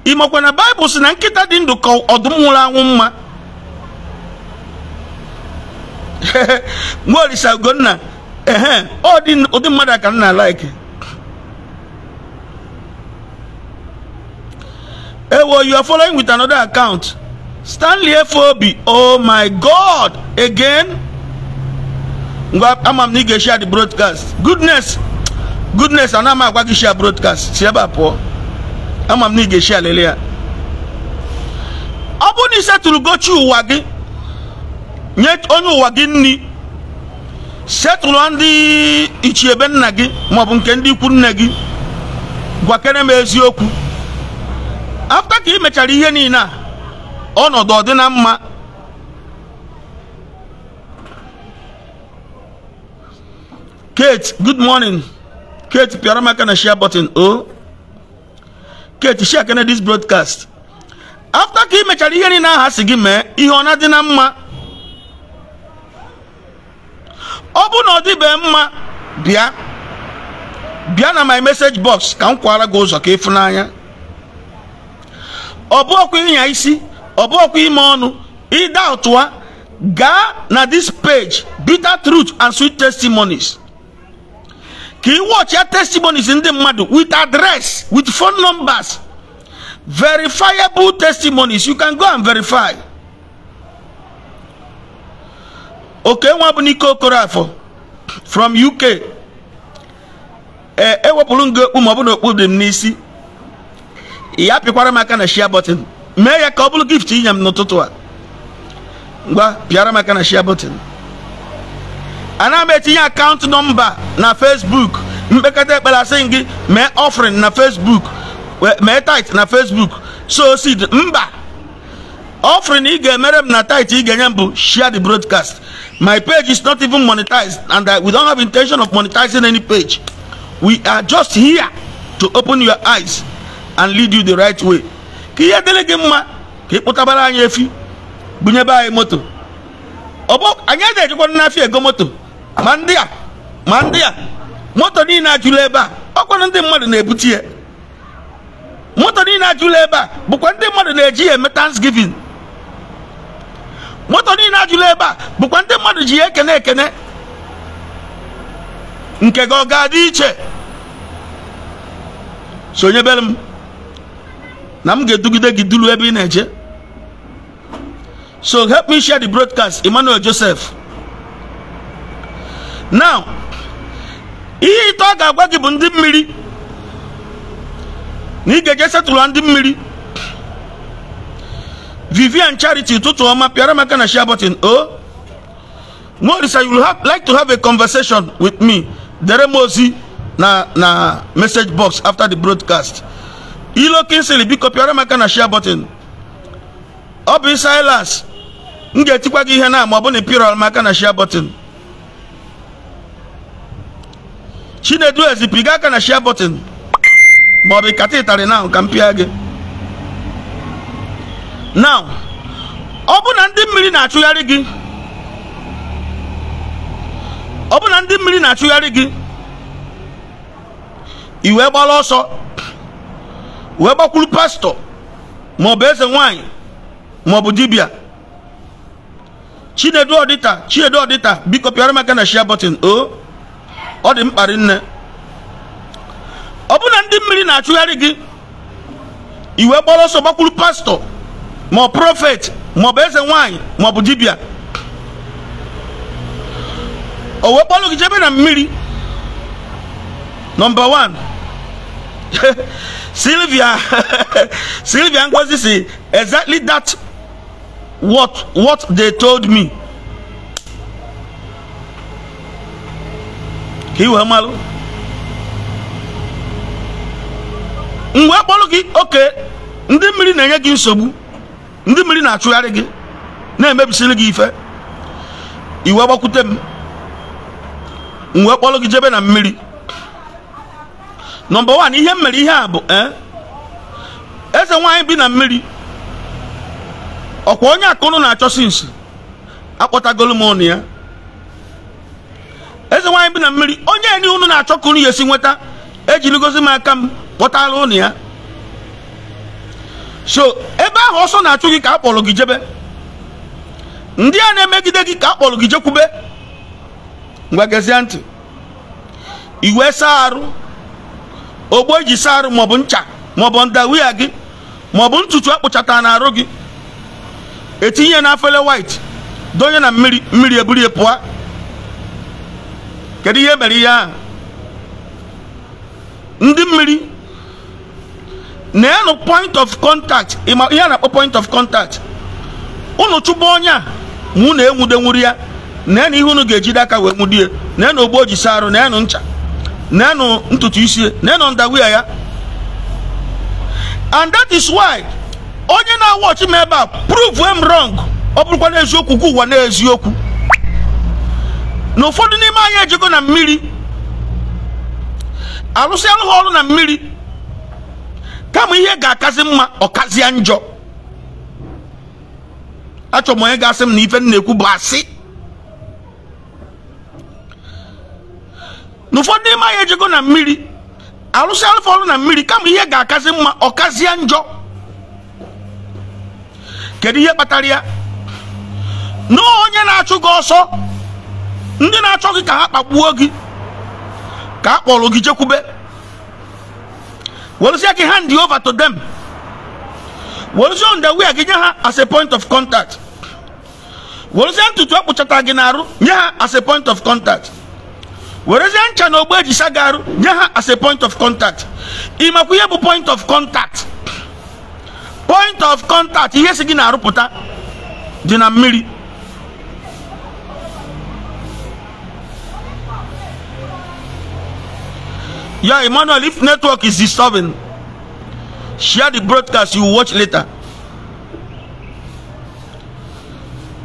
ị makwa na baịbụl si na nkịta dị ndụ ka ọdụm nwụrụ anwụ mma nwa olisa ugonna ehe ụdị mmadụ a ka m na-alaiki ewo you are following with another account stanley FOB oh my god again ngwa ama m na ị ga the broadcast goodness goodness ana m agwa gị broadcast si ebe a pụọ share m na ị ga-eshia lele ya ọ bụrụ na isetụrụ gochi ụwa gị onye ụwa gị nri setụrụ ndị ichiebe nna gị maọbụ nke ndị ikwu nne gị gwakere m eziokwu afta ka ị mechara ihe niile a ọnọdụ ọ dị na mma kate good morning kate pịara m aka na share button o kate share kene this broadcast afta ka ị mechara ihe niile aha si gị mee ihe ọ na-adị na mma ọ bụ na ọ dịbe mma bịa bịa na my message box ka m kwara gị ụzọ ka ịfụ n'anya ọbụọkwa ịnya isi ọbụọkwa ime ọnụ ịda ọtụa gaa na this page bitter truth and sweet testimonies ka ị wọchịa testimonies ndị mmadụ with address with phone numbers verifiable testimonies you can go and verify okenwa bụ n'ike okorafor from uk ee ewepụrụ m okpu ma ọ bụ na okpu dị m n'isi ya apịkwara m aka na shia bọtịn mee ya ka ọ bụrụ gift inye m n'ụtụtụ a ngwa pịara m aka na shia bọtịn ana m etinye akaụntụ nọmba na facebook mkpekata ekpere asị gị mee offering na facebook mee tit na facebook so seed mba offering ị ga-emere m na tit ị ga-enye m bụ share the broadcast my page is not even monetized and I, we don't have intention of monetizing any page we are just here to open your eyes and lead you the right way ka ihe dịrị gị mma ka ị kpụtabara anyị efi gbunyebe anyị moto anyị a na-ejikwa n'afịa ego moto ma ndị a ma ndị a moto niile ajụla ebe a ọkwanụ ndị mmadụ na-ebute ya moto niile ajụla ebe a bụkwa ndị mmadụ na-eji ya eme thanksgiving moto niile ajụla ebe a bụkwa ndị mmadụ ji ya ekene ekene nke gị ọ ga-adị iche sonyebere m na m ga-edugide gị duru ebe ị na-eje so help me share the broadcast Emmanuel Joseph now ihe ite ọ ga-agwa gị bụ ndị mmiri na ị ga-eje setụlụ ndị mmiri Vivian Charity ụtụtụ ọma pịara maka na share button o oh, you like to have a conversation with me dere m ozi na na message box after the broadcast ilo kinsili biko pịara m aka na share button ọ bụ silas m ga-etikwa gị ihe na ma ọ bụ na ịpịara m aka na share button chinedu ezipiga aka na share button ma ọ bụ kata ịtarị na ka m pịa gị now ọ bụ na ndị mmiri na-achụgharị gị ọ bụ na ndị mmiri na-achụgharị gị iwe gbara ọsọ wee gbakwuru pastọ maọbụ eze nwanyị maọbụ dibịa chinedu ọdịta chinedu ọdịta biko pịara maka na shia bọtịn o ọ dị mkparị nne ọ bụ na ndị mmiri na-achụgharị gị iwe gbara ọsọ gbakwuru pastọ ma ọ prọfet maọbụ eze nwanyị maọbụ dibia. o wee kpọrọ gị jebe na mmiri nọmba 1 Sylvia Sylvia Ngozi si exactly that what what they told me ka iwe mgbe gị oke ndị mmiri na-enye gị nsogbu ndị mmiri na-achụgharị gị na-emebisiri gị ife iwe gbakwute m mgbe kpọrọ gị jebe na mmiri nọmba one ihe m mere ihe a bụ e, eze nwaanyị bi na mmiri ọkwa onye akụnụ na-achọsi nsi akpọtagolu m ụnụ ya eze nwaanyị bi na mmiri onye enyi unu na-achọ ka unu ya esi nweta ejirigozi m aka m kpọtara ụnụ ya so ebe ahụ ọsọ na-achụ gị ka akpọrọ gị jebe ndị a na-emegide gị ka akpọrọ kpọrọ gị jekwube ngwa gezie ntị iwe saa arụ ogbo eji saa arụ maọbụ ncha maọbụ ndawia gị maọbụ ntutu akpụchata na arụ gị etinye na afele white donye na mmiri mmiri eburu ya pụọ kedu ihe mere ihe ahụ ndị mmiri na-enụ point of contact ihe a na-akpọ point of contact unu chụgba onye a na unu enwudenwuru ya na-enụ ihe unu ga-ejide aka wee nwudie na-enụ ogbo e ji saa arụ na-enụ ncha nenụ ntutu isi nenụ ndawia ya and that is why onye na-awọchi m ebe a prove m wrong ọ bụrụkwa n'eziokwu ka ụwa n'eziokwu na ụfọdụ n'ime anyị ejego na mmiri alụsị alụghị ọrụ na mmiri kama ihe ga-akazi mma ọkazịa njọ achọrọ m onye ga-asị m na ife m bụ asị na ụfọdụ n'ime anyị na mmiri arụsị alụfọ ọrụ na mmiri kama ihe ga-akazi mma ọkazie njọ kedu ihe kpatara ya na onye na-achụ gị ọsọ ndị na-achọ gị ka ha kpagbuo gị ka a kpọrọ gị jekwube werụsịa gị hand over to them werụsịa ndewia gị nye ha as a point of contact werụsịa ntutu akpụchata e gị n'arụ nye ha as a point of contact werezie ncha na ogbo eji sagaru nye ha as a point of contact ịmakwa ihe bụ point of contact point of contact ihe si gị na-arụpụta dị na mmiri ya emmanuel if network is disturbing share the broadcast you watch later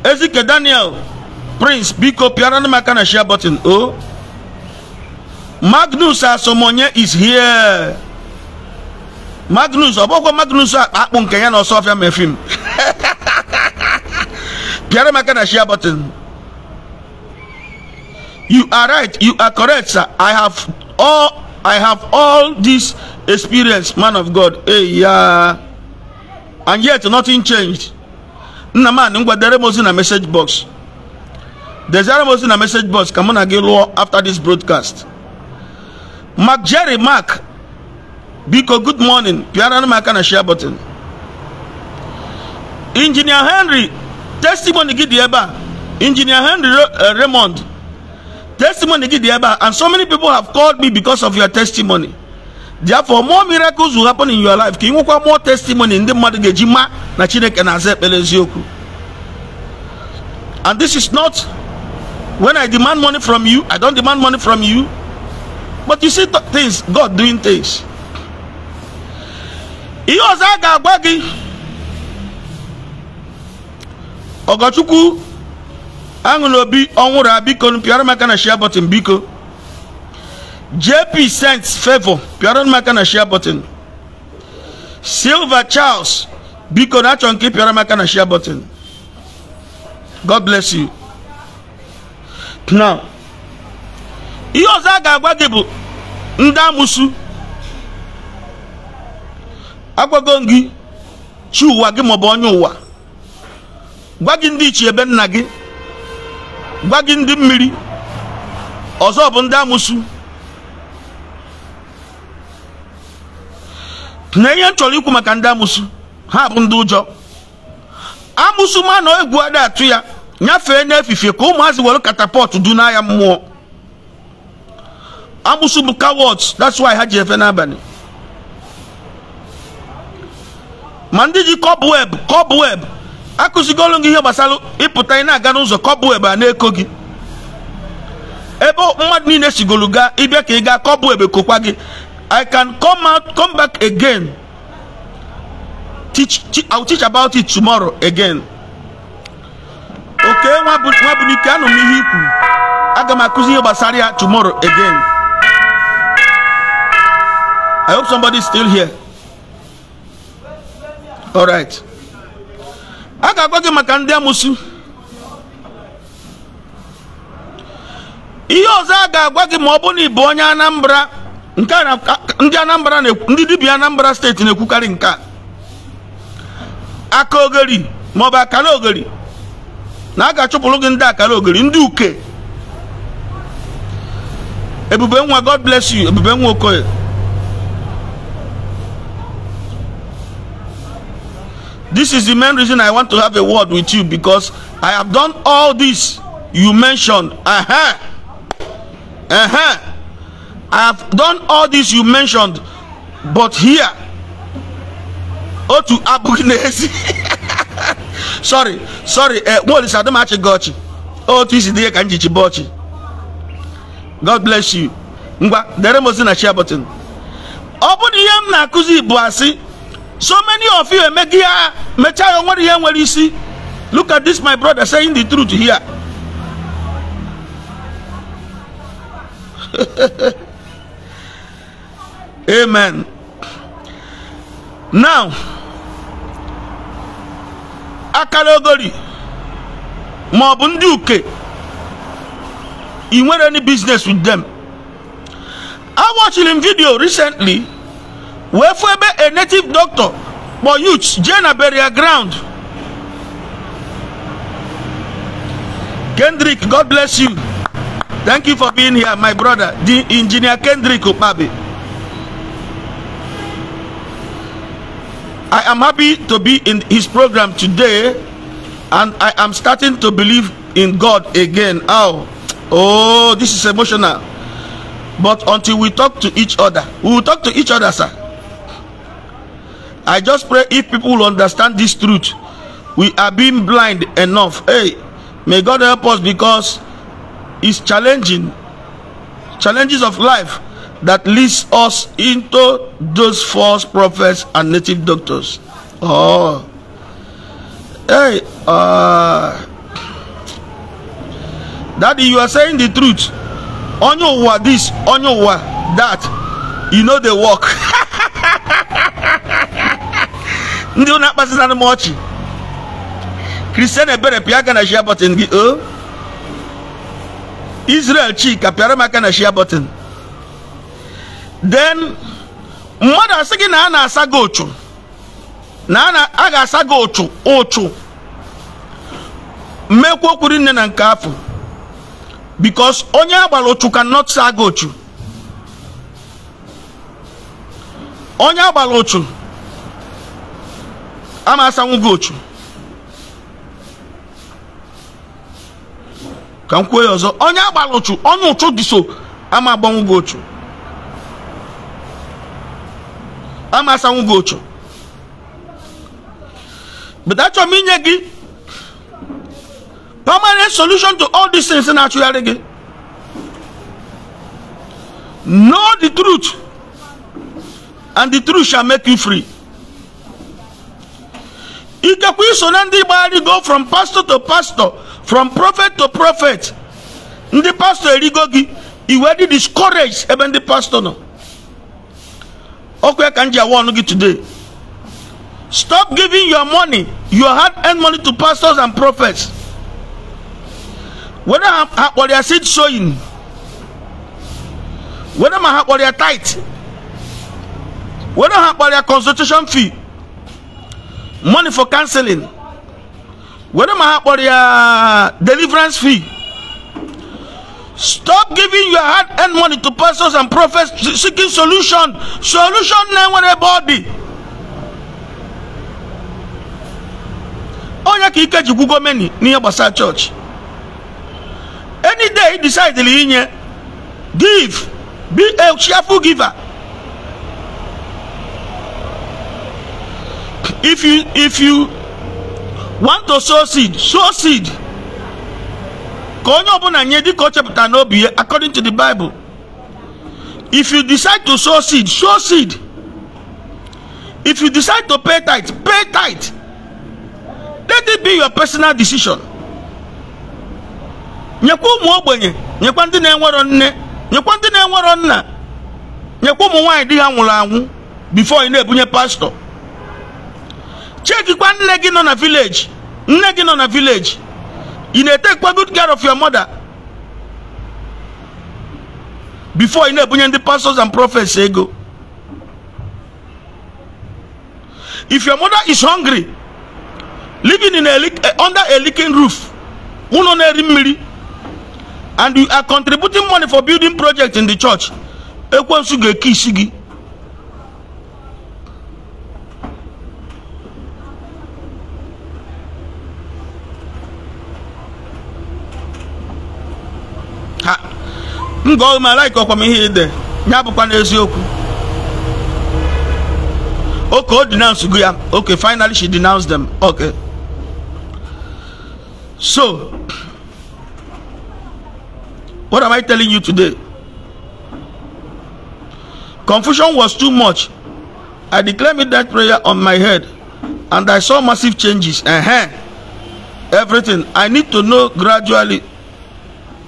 ezike daniel prince biko pịara maka na share button o oh. Magnus Asomonye is here. Magnus, ọbọkwa Magnus akpụ nke ya na Ọsọfịa mefim. Pịara m aka na share button. You are right, you are correct, sir. I have all I have all this experience, man of God. Hey, yeah. and yet nothing changed. Na man, anị ngwadere m ozi na message box. Dezere m ozi na message box ka mụ na gị lụọ after this broadcast. Mark Jerry Mark biko good morning pịara m aka na share button injinia Henry testimony gị dị ebe a Henry uh, Raymond testimony gị dị ebe and so many people have called me because of your testimony therefore more miracles will happen in your life ka ị nwekwa more testimony ndị mmadụ ga-eji ma na Chineke na-aza ekpere eziokwu and this is not when I demand money from you I don't demand money from you but you see things god doing things ihe ọzọ a ga-agwa gị ọgọchukwu aṅụla obi ọnwụrụ biko pịara m aka na share button biko jp sents favor pịara m aka na share button silva charles biko na achọ nke pịara m aka na share button god bless you now ihe ọzọ a ga-agwa gị bụ ndị amụsụ agwago gị chi ụwa gị maọbụ onye ụwa gwa gị ndị iche ebe nna gị gwa gị ndị mmiri ọzọ bụ ndị amụsụ na ihe m chọrọ ikwu maka ndị amụsụ ha bụ ndị ụjọ amụsụ ma na egwu ada atụ ya nyafee n'efifie ka ụmụazị were katapọtụ du n'agha mmụọ agbụsụ bụ cowards that's why ha ji efe n'abalị ma ndị ji cobweb cobweb akụzigolu gị ihe gbasara ịpụta ị na-aga n'ụzọ cobweb a na-eko gị ebe mmadụ niile sigolu gaa ịbịa ka ị gaa cobweb kokwa gị i can come out come back again teach, teach, teach about it tomorrow again oke nwa bụ n'ike anụ m ihe ikwu aga m akụzi ihe gbasara ya tomorrow again I hope somebody's still here. All right. A ga-agwa gị maka ndị amụsụ. Ihe ọzọ a ga-agwa gị ma ọ bụrụ na ị onye Anambra nke ndi Anambra ndị dibịa Anambra steeti na-ekwukarị nke a. Aka ogeri ma ọ bụ akara na aga ga gi gị ndị akara ogeri ndị uke. Ebube nwa God bless you Ebube nwa Okoye. This is the main reason I want to have a word with you because I have done all this you mentioned. Uh-huh. Uh-huh. I have done all this you mentioned, but here, oh to Abukinesi. sorry, sorry, uh, what is Adamachi Gochi? Oh, this is the Kanjichi Bochi. God bless you. Ngwa, dere mozi na share button. Open bụrụ m na kuzi buasi. So many of you emegia mecha onwere ihe nwere isi. Look at this my brother saying the truth here. Amen. Now akara ogori ma ọ bụ ndị uke ị nwere any business with them. I watched him video recently wefebe a native doctor for youth jee burial ground kendrick god bless you thank you for being here my brother the engineer kendrick Opabe. i am happy to be in his program today and i am starting to believe in god again oh oh this is emotional but until we talk to each other we will talk to each other sir I just pray if people understand this truth, we are being blind enough. Hey, may God help us because it's challenging, challenges of life that leads us into those false prophets and native doctors. Oh, hey, uh, daddy, you are saying the truth. On your word, this, on your word, that, you know they work. ndị na-akpazina m ọchị kristian ebere pịa aka na shia bọtịn gị o oh. israel chika pịara m aka na shia bọtịn den mmadụ asị gị na a na-asa gị ụchụ na a ga-asa gị ụchụ ụchụ mmekwa okwuri nne na nke afọ because onye agbara ụchụ cannot saa gị ụchụ onye agbara ụchụ ama asanwó vootu ka m kwuo ya ọzọ onye agbara ụchụ onye ụchụ dị so ama agbanwo vootu ama asanwó vootu but achọrọ m inye gị permanent solution to all these things na-achụgharị gị know the truth and the truth shall make you free ikekwe iso na ndị gbagharịgo from pastor to pastor from prophet to prophet ndị pastor erigo gị iwe dị discourage ebe ndị pastor nọ okwe ka m ji awa ọnụ gị today stop giving your money your hard earned money to pastors and prophets whether ha kpọrọ ya seed sowing whether ma ha kpọrọ ya tithe whether ha kpọrọ ya consultation fee money for counseling were ma ha kpọrọ ya deliverance fee stop giving your hard earned money to pastors and prophets seeking solution solution na-enwere ebe ọ onye ka ike jikwu gọọmenti n'ihe gbasara any day e decide inye give be a cheerful giver if you if you want to sow seed sow seed ka onye ọbụla nye dịka o chepụtara n'obi ya according to the bible if you decide to sow seed sow seed if you decide to pay tithe pay tithe let it be your personal decision nyekwa ụmụ ogbenye nyekwa ndị na-enwerọ nne nyekwa ndị na-enwerọ nna nyekwa ụmụ nwaanyị di ha nwụrụ anwụ bifo ị na-ebunye pastọ chekikwa nne gị nọ na vileji nne gị nọ na vileji ị na-etekwa good care of your mother before ị na-ebunye ndị pastors and prophets ego if your mother is hungry living in a eh, under a leaking roof ụlọ na-eri mmiri and you are contributing money for building project in the church ekwensu ga-eke isi gị m gụọ malaika ọkwa m ihe ide bụkwa n'eziokwu oke o denounce go okay finally she denounced them okay so what am i telling you today confusion was too much i declared that prayer on my head and i saw massive changes uh -huh. everything i need to know gradually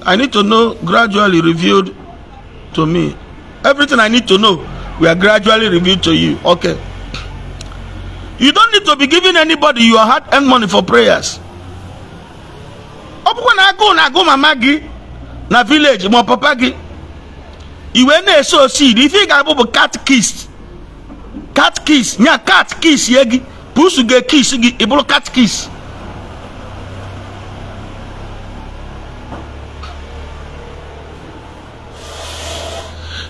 I need to know gradually revealed to me. Everything I need to know, we are gradually revealed to you. Okay. You don't need to be giving anybody your heart and money for prayers. Ọbụkwa na agụụ na-agụ mama gị na village ma papa gi. iwe na-eso osi ife ị ga-abụ bụ cat kiss cat kiss nya cat kiss ye gị pusu ga-ekis gị ịbụrụ cat kiss.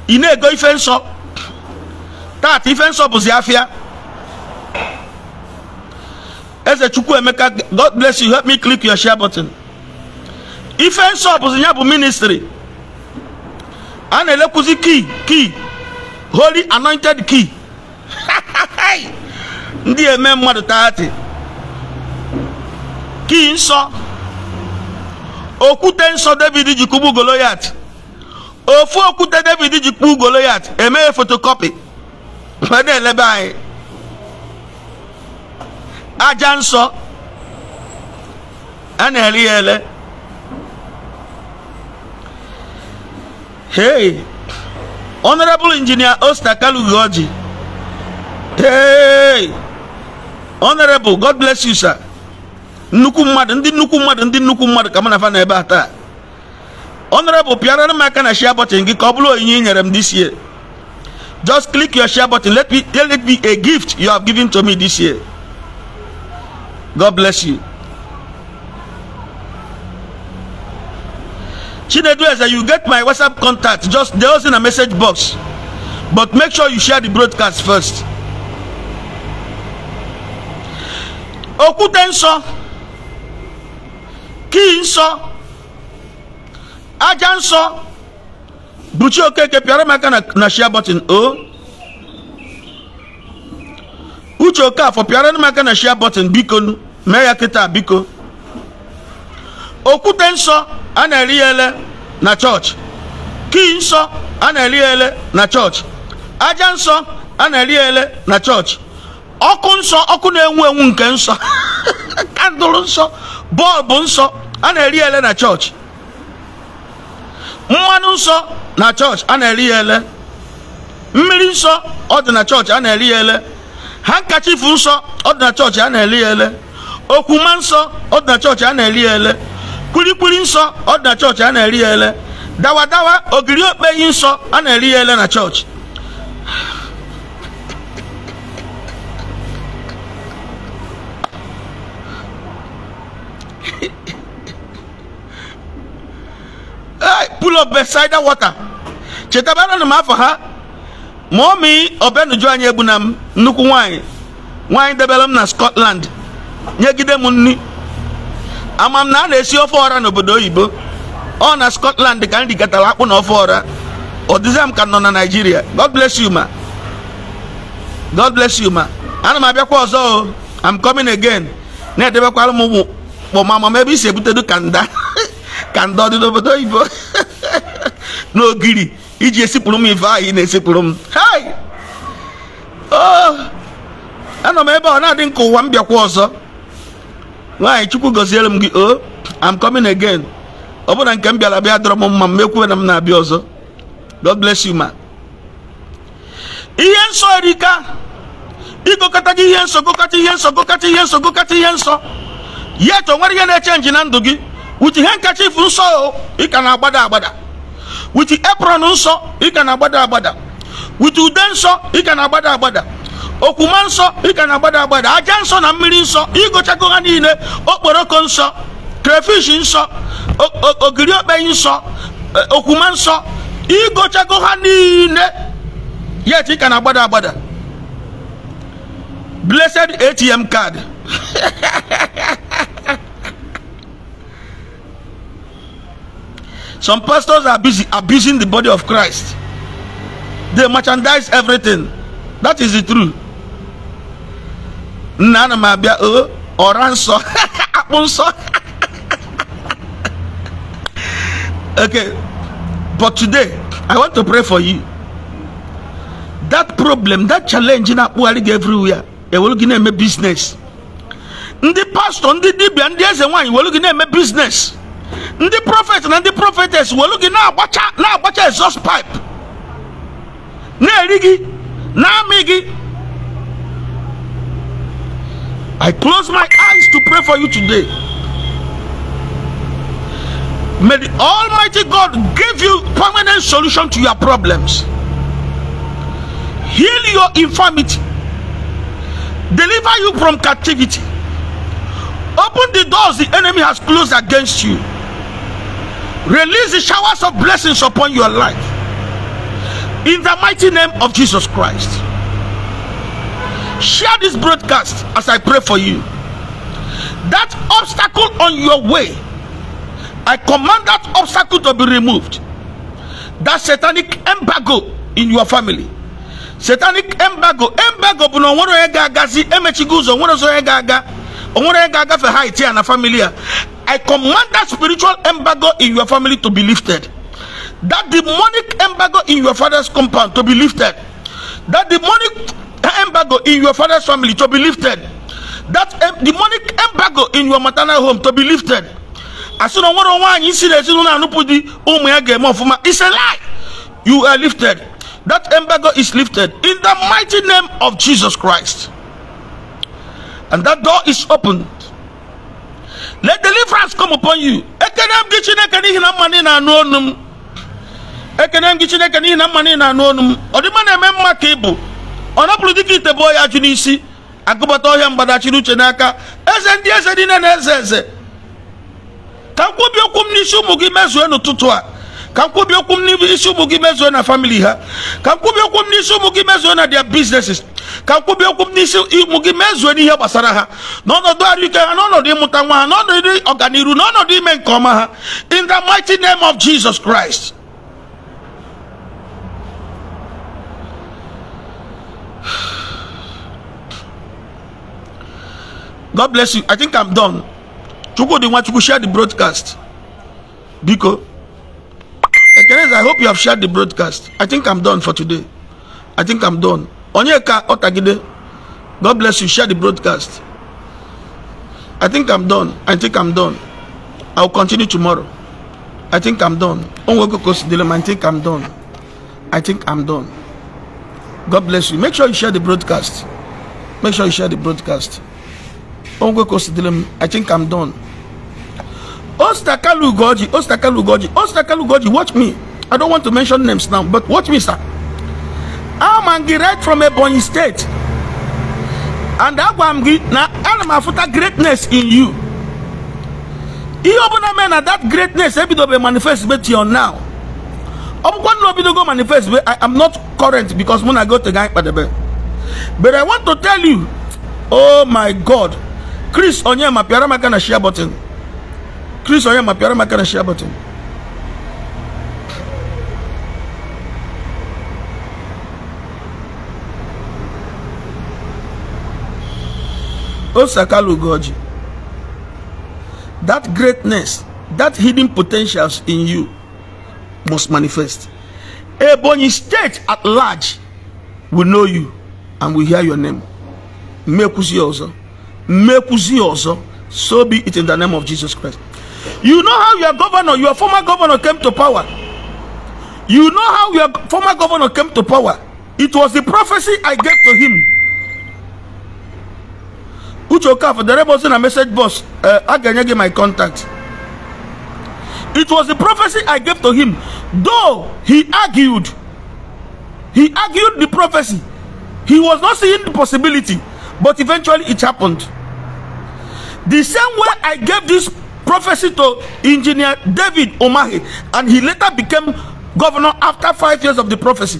ina ego ife nsọ taata ife nsọ bụzi afịa eze chukwu emeka god bless you help me click your share button ife nsọ bụzi ya bụ ministry a na-elekwuzi key key holy anointed key ndị eme mmadụ taati kii nsọ okwute nsọ david ji kugbu goloyat ofu okwute david ji kpuo goloyat emeghe fotokọpị ma na-elebe anyị aja nsọ a na-ere ya ele hey honorable engineer osta kalugoji hey honorable god bless you sir nnukwu mmadụ ndị nnukwu mmadụ ndị nnukwu mmadụ ka mụ na fa na ebe a taa honorable piano m aka na share button gị ka ọ nyere m this year just click your share button let me let it be a gift you have given to me this year god bless you chinedu eze you get my whatsapp contact just dey also in a message box but make sure you share the broadcast first okwute nsọ kii nsọ aja nsọ buchi okeke pịara m aka na shia button o uche okafọ pịara m aka na shia button biko mee ya kịta biko okwute nsọ a na-eri ele na chọọchị kii nsọ a na-eri ele na chọọchị aja nsọ a na-eri ele na chọọchị ọkụ nsọ ọkụ na-enwu enwu nke nsọ kandụl nsọ bọọbụ nsọ a na-eri ele na chọọchị mmanụ nsọ na chọọchị a na-eri ya ele mmiri nsọ ọ na chọọchị a na-eri ya ele hankachifu nsọ ọ na chọọchị a na-eri ya ele okwuma nsọ ọ dị na chọọchị a na-eri ya ele kwilikwili nsọ ọ na chọọchị a na-eri ya ele dawadawa ogiri okpeyi nsọ a na-eri ya ele na chọọchị pool of Bethesda water chetabara na m afọ ha ma omi obenuju anyị egbuna m nnukwu nwanyị nwanyị debere m na Scotland nyegide m nni Amam na a na-esi ofe ọra n'obodo oyibo ọ na Scotland ka m rigatara akpụ na ofe ọra ọdịza m ka nọ na Nigeria. God bless you ma God bless you ma ana m abịakwa ọzọ o I'm coming again na-edebekwara m ụmụ kpọma mama ebe i si ebutedu kanda kanda obodo oyibo n'ogiri iji esipụrụ m ife ahụ ị na-esipụrụ m oh! anọ m ebe ọ na-adị nke ụwa m bịakwa ọzọ nwaanyị chukwu gọziere m gị o oh, am coming again ọ bụla nke m bịara bịa dọrọ m mma m ekwuwe na m na-abịa ọzọ god bless you ma ihe nsọ erika ịgụkọta gị ihe nsọ gụkọta ihe nsọ gụkọta ihe nsọ gụkọta ihe nsọ yet o nwere ihe na-eche nji na ndụ gị uche ihe nkacha ifu nsọ ị ka na-agbada agbada with apron nsọ ị ka na-agbada agbada with ude nsọ ị ka na-agbada agbada okwuma nsọ ị ka na-agbada agbada aja nsọ na mmiri nsọ ịgụchago ha niile okporoko nsọ crayfish nsọ ogiri okpeyi nsọ e, okwuma nsọ ịgụchago ha niile ya ị ka na-agbada agbada blessed atm card Some pastors are busy abusing the body of Christ. They merchandise everything. That is the truth. Nana mabia o oh, oranso apunso. Okay. But today, I want to pray for you. That problem, that challenge in Apualig everywhere, they will give them a business. The the DB, and the ndị one you were looking at na-eme business ndị prọfet na ndị prọfetes welu gị na-agbacha na-agbacha exhaust pipe na-eri gị na-amị gị I close my eyes to pray for you today. May the Almighty God give you permanent solution to your problems. Heal your infirmity. Deliver you from captivity. Open the doors the enemy has closed against you. Release the showers of blessings upon your life. In the mighty name of Jesus Christ. Share this broadcast as I pray for you. That obstacle on your way, I command that obstacle to be removed. That satanic embargo in your family. Satanic embargo, embargo bụ na onwere onye ga-agazi emechigo ụzọ onwere onye ga-aga onwere onye ga-agafe ha iti ya na familia. I command that spiritual embargo in your family to be lifted. That demonic embargo in your father's compound to be lifted. That demonic embargo in your father's family to be lifted. That demonic embargo in your maternal home to be lifted. As soon as one anyị si na ezinụlọ anụpụ di ụmụ ya ga-eme ọfụma. It's a lie. You are lifted. That embargo is lifted in the mighty name of Jesus Christ. And that door is open. let deliverance come upon you ekene m chineke n'ihi na mma na anụ ọnụ m ekene m gị n'ihi na mma na anụ ọnụ m ọdịmma na-eme mma ka ịbụ ọ napụrụ dịka ite bụ ya jụ n'isi agụbata ọhịa mgbadachiri uche n'aka eze ndị eze niile na eze eze ka nkwubi okwu m n'isi ụmụ gị mezue n'ụtụtụ a ka nkwubi okwu m n'isi ụmụ gị mezue na famili ha ka nkwubi okwu m n'isi ụmụ gị mezue na their businesses okwu n'isi gị mezuo n'ihe gbasara ha n'ọnọdụ arụike ha n'ọnọdụ ịmụta nwa ha n'ọnọdụ n'ọnọdụ ime nke ọma ha in the mighty name of Jesus Christ God bless you. I think I'm done. Chukwudi Nwachukwu, share the broadcast. Biko. I hope you have shared the broadcast. I think I'm done for today. I think I'm done. onyeka otagide god bless you share the broadcast i think i'm done i think i'm done i'll continue tomorrow i think i'm done onwekokosidelem i think i'm done i think i'm done god bless you make sure you share the broadcast make sure you share the broadcast onwekokosidelem i think i'm done ostakalu goji ostakalu goji ostakalu goji watch me i don't want to mention names now but watch me sir and graduate from Ebonyi State. And that one gị na ana m greatness in you. Ihe ọbụla mee na that greatness ebidobe manifest be till now. Ọ bụkwa nna go manifest be I am not current because mụ na go to guy, Nkpadebe. But I want to tell you, oh my God, Chris Onyema pịara m na share button. Chris Onyema pịara m na share button. Osakalugoji, that greatness, that hidden potentials in you must manifest. Ebonyi state at large will know you and will hear your name. Mekwuzie ọzọ. Mekwuzie ọzọ. So be it in the name of Jesus Christ. You know how your governor, your former governor came to power. You know how your former governor came to power. It was the prophecy I gave to him For the rebels in a message box I uh, can enye my contact it was the prophecy i gave to him though he argued he argued the prophecy he was not seeing the possibility but eventually it happened the same way i gave this prophecy to engineer david omahi and he later became governor after five years of the prophecy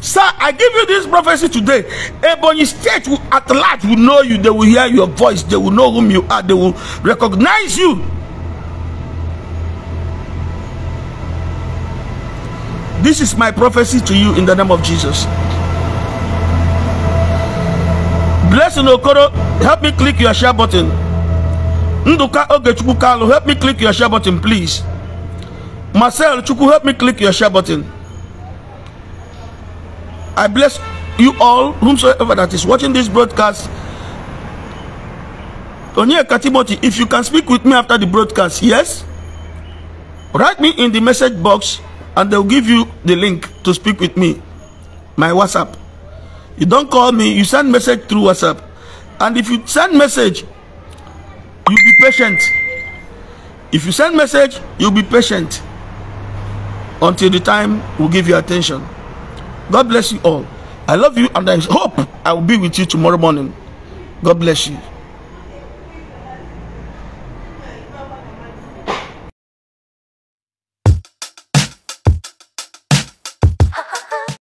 Sir, I give you this prophecy today. Ebony State will, at large will know you. They will hear your voice. They will know whom you are. They will recognize you. This is my prophecy to you in the name of Jesus. Blessing Okoro, help me click your share button. Nduka Ogechukwu Kalu, help me click your share button, please. Marcel Chukwu, help me click your share button. I bless you all, whomsoever that is watching this broadcast. Onyeka Timothy, if you can speak with me after the broadcast, yes? Write me in the message box and they'll give you the link to speak with me. My WhatsApp. You don't call me, you send message through WhatsApp. And if you send message, you be patient. If you send message, you'll be patient until the time we we'll give you attention. God bless you all. I love you and I hope I will be with you tomorrow morning. God bless you.